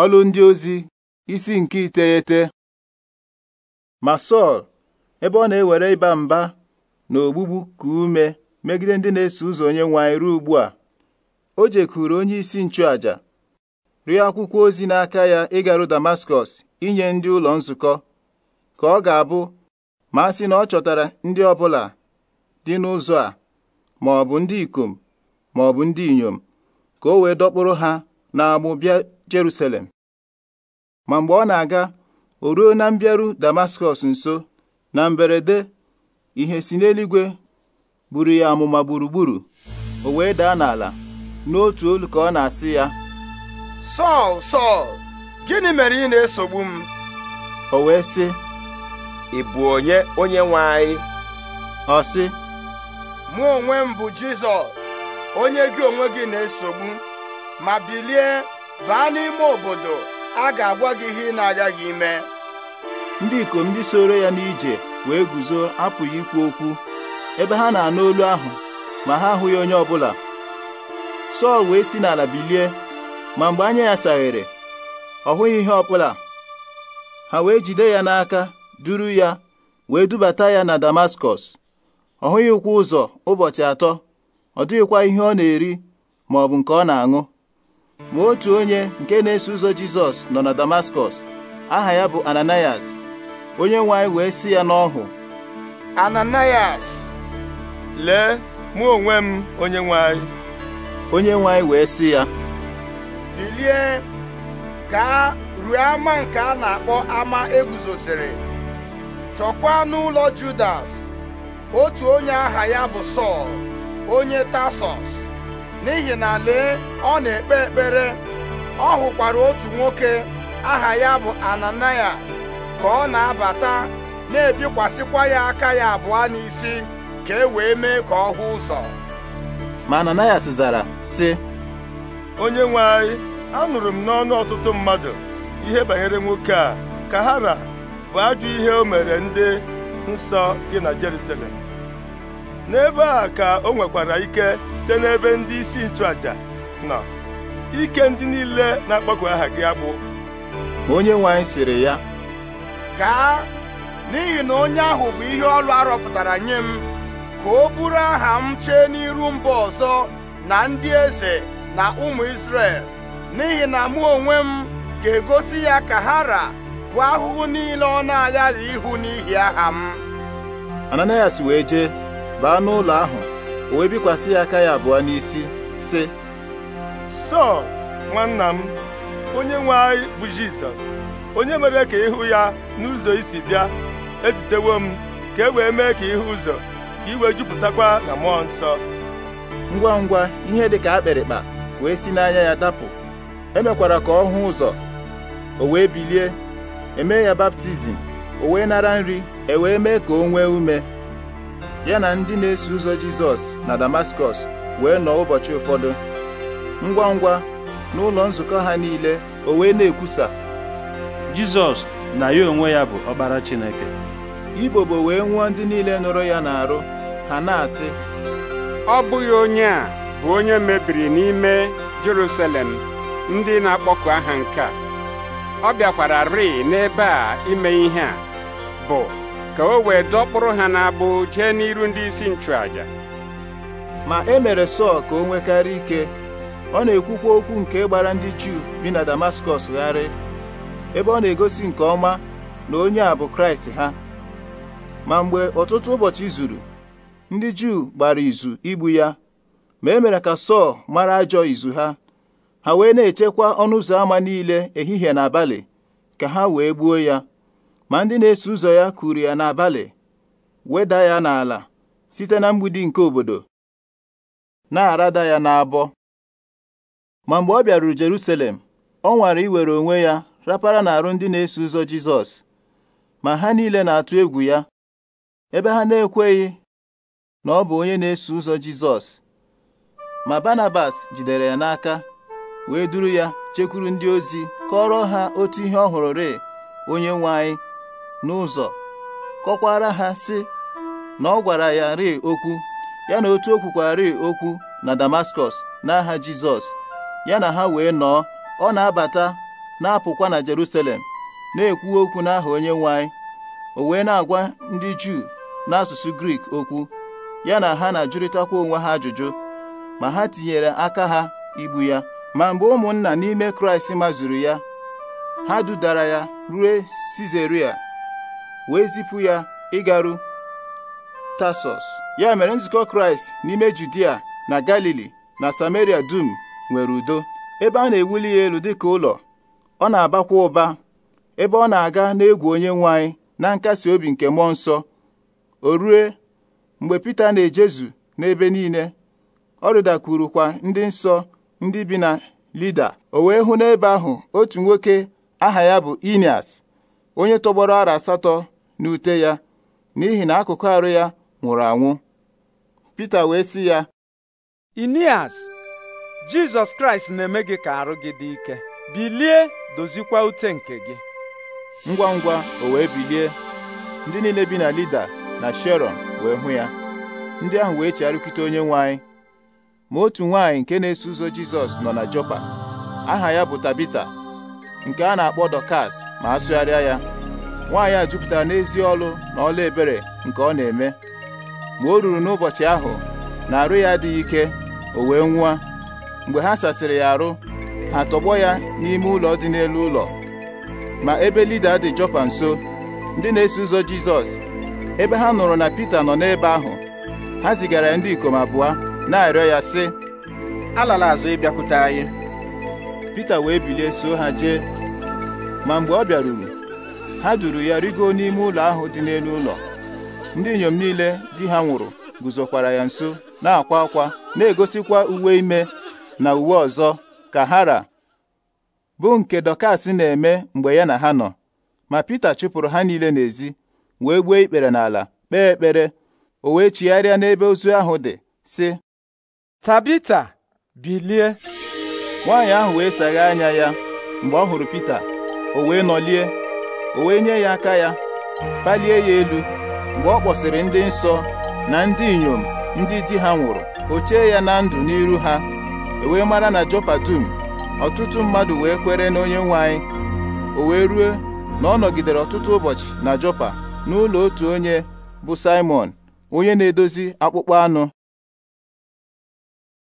Ọlụ ndị ozi isi nke iteghete ma Sọl ebe ọ na-ewere ịba mba na ogbugbu ka ume megide ndị na-eso ụzọ onye nwe ruo ugbu a o jekwuru onye isi nchụàja rịọ akwụkwọ ozi n'aka ya ịgaru Damaskọs inye ndị ụlọ nzukọ ka ọ ga-abụ ma sị na ọ chọtara ndị ọbụla dị n'ụzọ a ma ndị ikom ma ndị inyom ka o wee dọkpụrụ ha n'agbụ bịa Jerusalem ma mgbe ọ na-aga o ruo na mbịaru Damaskọs nso na mberede ihe si n'eluigwe buru ya amụma gburugburu o wee daa n'ala n'otu olu ka ọ na-asị ya Sọl Sọl gịnị mere ị na-esogbu m o wee sị ị bụ onye onye nwe anyị ọ sị mụ onwe m bụ Jizọs onye gị onwe gị na-esogbu ma bilie baa n'ime obodo a ga-agwa gị ihe ị na gị ime ndị ikom ndị soro ya n'ije wee guzo apụghị ikwu okwu ebe ha na-anụ olu ahụ ma ha ahụghị onye ọbụla Sọl wee si n'ala bilie ma mgbe anya ya saghere ọ hụghị ihe ọbụla ha wee jide ya n'aka duru ya wee dubata ya na Damaskọs ọ hụghị ụkwụ ụzọ ụbọchị atọ ọ dịghịkwa ihe ọ na-eri ma ọ bụ nke ọ na-aṅụ ma otu onye nke na-eso ụzọ Jizọs nọ na Damaskọs aha ya bụ Ananias onye nwe wee si ya n'ọhụ Ananias lee mụ onwe m onye nwe onye nwe wee si ya bilie ka ruo ama nke a na-akpọ ama eguzosiri chọkwaa n'ụlọ Judas otu onye aha ya bụ Sọl onye Tasọs n'ihi na lee ọ na-ekpe ekpere ọ hụkwara otu nwoke aha ya bụ Ananias ka ọ na-abata na-ebikwasịkwa ya aka ya abụọ n'isi ka e wee mee ka ọ hụ ụzọ ma Ananias zara sị onye nwe anyị anụrụ m n'ọnụ ọtụtụ mmadụ ihe banyere nwoke a ka hara bụ ajụ ihe o mere ndị nsọ gị na Jerusalem n'ebe a ka o nwekwara ike site n'ebe ndị isi nchụaja nọ ike ndị niile na-akpọku aha gị agbụ onye nwe siri ya gaa n'ihi na onye ahụ bụ ihe ọlụ arọpụtara nye m ka o bụrụ aha m chee n'iru mba ọzọ na ndị eze na ụmụ Izrel n'ihi na mụ onwe m ga-egosi ya ka ha ra bụ ahụhụ niile ọ na-aghaghị ihu n'ihi aha m Ananias wee jee baa n'ụlọ ahụ o wee bikwasị ya aka ya abụọ n'isi sị sọl nwanna m onye nwe anyị bụ jizọs onye mere ka ịhụ ya n'ụzọ isi bịa ezitewo m ka e wee mee ka ịhụ ụzọ ka wee jupụtakwa na mmụọ nsọ ngwa ngwa ihe dị ka akpịrịkpa wee si n'anya ya dapụ emekwara ka ọ hụ ụzọ o wee bilie emee ya baptizim o wee nara nri e wee mee ka o nwee ume ya na ndị na-eso ụzọ Jizọs na Damaskọs wee nọ ụbọchị ụfọdụ ngwa ngwa ụlọ nzukọ ha niile o wee na-ekwusa Jizọs na ya onwe ya bụ ọkpara Chineke Ibobo wee nwụọ ndị niile nụrụ ya n'arụ ha na-asị ọ bụghị onye a bụ onye mebiri n'ime Jerusalem ndị na-akpọku aha nke a ọ bịakwara rịị n'ebe a ime ihe a bụ ka o wee dọkpụrụ ha n'abụ jee n'iru ndị isi nchụàjà ma e mere Sọl ka o nwekarị ike ọ na-ekwukwa okwu nke gbara ndị Juu bi na Damaskọs gharị ebe ọ na-egosi nke ọma na onye a bụ Kraịst ha ma mgbe ọtụtụ ụbọchị zuru ndị Juu gbara izu igbu ya ma e mere ka Sọl mara ajọ izu ha ha wee na-echekwa ọnụ ụzọ ámá niile ehihie na abalị ka ha wee gbuo ya ma ndị na-eso ụzọ ya kuru ya n'abalị weda ya n'ala site na mgbidi nke obodo na-arada ya n'abọ ma mgbe ọ bịaruru Jerusalem ọ nwara iwere onwe ya rapara n'arụ ndị na-eso ụzọ Jizọs ma ha niile na-atụ egwu ya ebe ha na-ekweghị na ọ bụ onye na-eso ụzọ Jizọs ma Barnabas jidere ya n'aka wee duru ya chekwuru ndị ozi kọrọ ha otu ihe ọ hụrụ rịị onye nwe anyị n'ụzọ kọkwara ha sị na ọ gwara ya ri okwu ya na otu o kwukwari okwu na Damaskọs n'aha Jizọs ya na ha wee nọọ ọ na-abata na-apụkwa na Jerusalem na-ekwu okwu n'aha onye nwanyị o wee na-agwa ndị Juu n'asụsụ Grik okwu ya na ha na-ajụrịtakwa onwe ha ajụjụ ma ha tinyere aka ha igbu ya ma mgbe ụmụnna n'ime Kraịst mazuru ya ha dudara ya rue Sizeria wee zipụ ya ịgaru tasos ya mere nzukọ Kraịst n'ime Judia na Galili na Samaria dum nwere udo ebe a na-ewuli ya elu dịka ụlọ ọ na-abakwa ụba ebe ọ na-aga n'egwu onye nwanyị na nkasi obi nke mmụọ nsọ o rue mgbe Pita na-ejezu n'ebe niile ọ rịdakwurukwa ndị nsọ ndị bi na Lida o wee hụ n'ebe ahụ otu nwoke aha ya bụ Inias onye tọgbọrọ ara asatọ n'ute ya n'ihi na akụkụ arụ ya nwụrụ anwụ Pita wee sị ya Inias Jizọs Kraịst na-eme gị ka arụ gị dị ike bilie dozikwa ute nke gị ngwa ngwa o wee bilie ndị niile bi na Lida na Sharon wee hụ ya ndị ahụ wee chegharịkite onye nwanyị ma otu nwaanyị nke na-eso ụzọ Jizọs nọ na Jopa aha ya bụ Tabita nke a na-akpọ Dọkas ma a sụgharịa ya nwaanyị a jupụtara n'ezi ọlụ na ọlụ ebere nke ọ na-eme mgbe o ruru n'ụbọchị ahụ na arụ ya adịghị ike o wee nwụọ mgbe ha sasịrị ya arụ ha tọgbọ ya n'ime ụlọ dị n'elu ụlọ ma ebe lida dị Jọpa nso ndị na-eso ụzọ Jizọs ebe ha nụrụ na Pita nọ n'ebe ahụ ha zigara ya ndị ikom abụọ na-arịọ ya sị alala azụ ịbịakwute anyị Pita wee bilie so ha jee ma mgbe ọ bịaruru ha duru ya rigo n'ime ụlọ ahụ dị n'elu ụlọ ndị inyom niile di ha nwụrụ guzokwara ya nso na-akwa akwa na-egosikwa uwe ime na uwe ọzọ ka hara bụ nke Dọkas na-eme mgbe ya na ha nọ ma Pita chụpụrụ ha niile n'ezi wee gbuo ikpere n'ala kpee ekpere o wee chigharịa n'ebe ozu ahụ dị sị Tabita bilie nwaanyị ahụ wee sagha anya ya mgbe ọ hụrụ Pita o wee nọlie o wee nye ya aka ya palie ya elu mgbe ọ kpọsịrị ndị nsọ na ndị inyom ndị di ha nwụrụ o chee ya na ndụ n'iru ha e wee mara na Jopa dum ọtụtụ mmadụ wee kwere na onye nwanyị o wee rue na ọ nọgidere ọtụtụ ụbọchị na Jopa n'ụlọ otu onye bụ Simon onye na-edozi akpụkpọ anụ